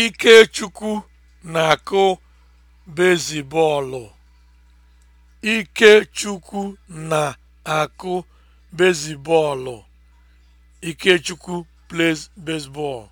Ikechukwu na-akụ bezibọọlụ. Ikechukwu na-akụ bezibọọlụ. Ikechukwu plays baseball.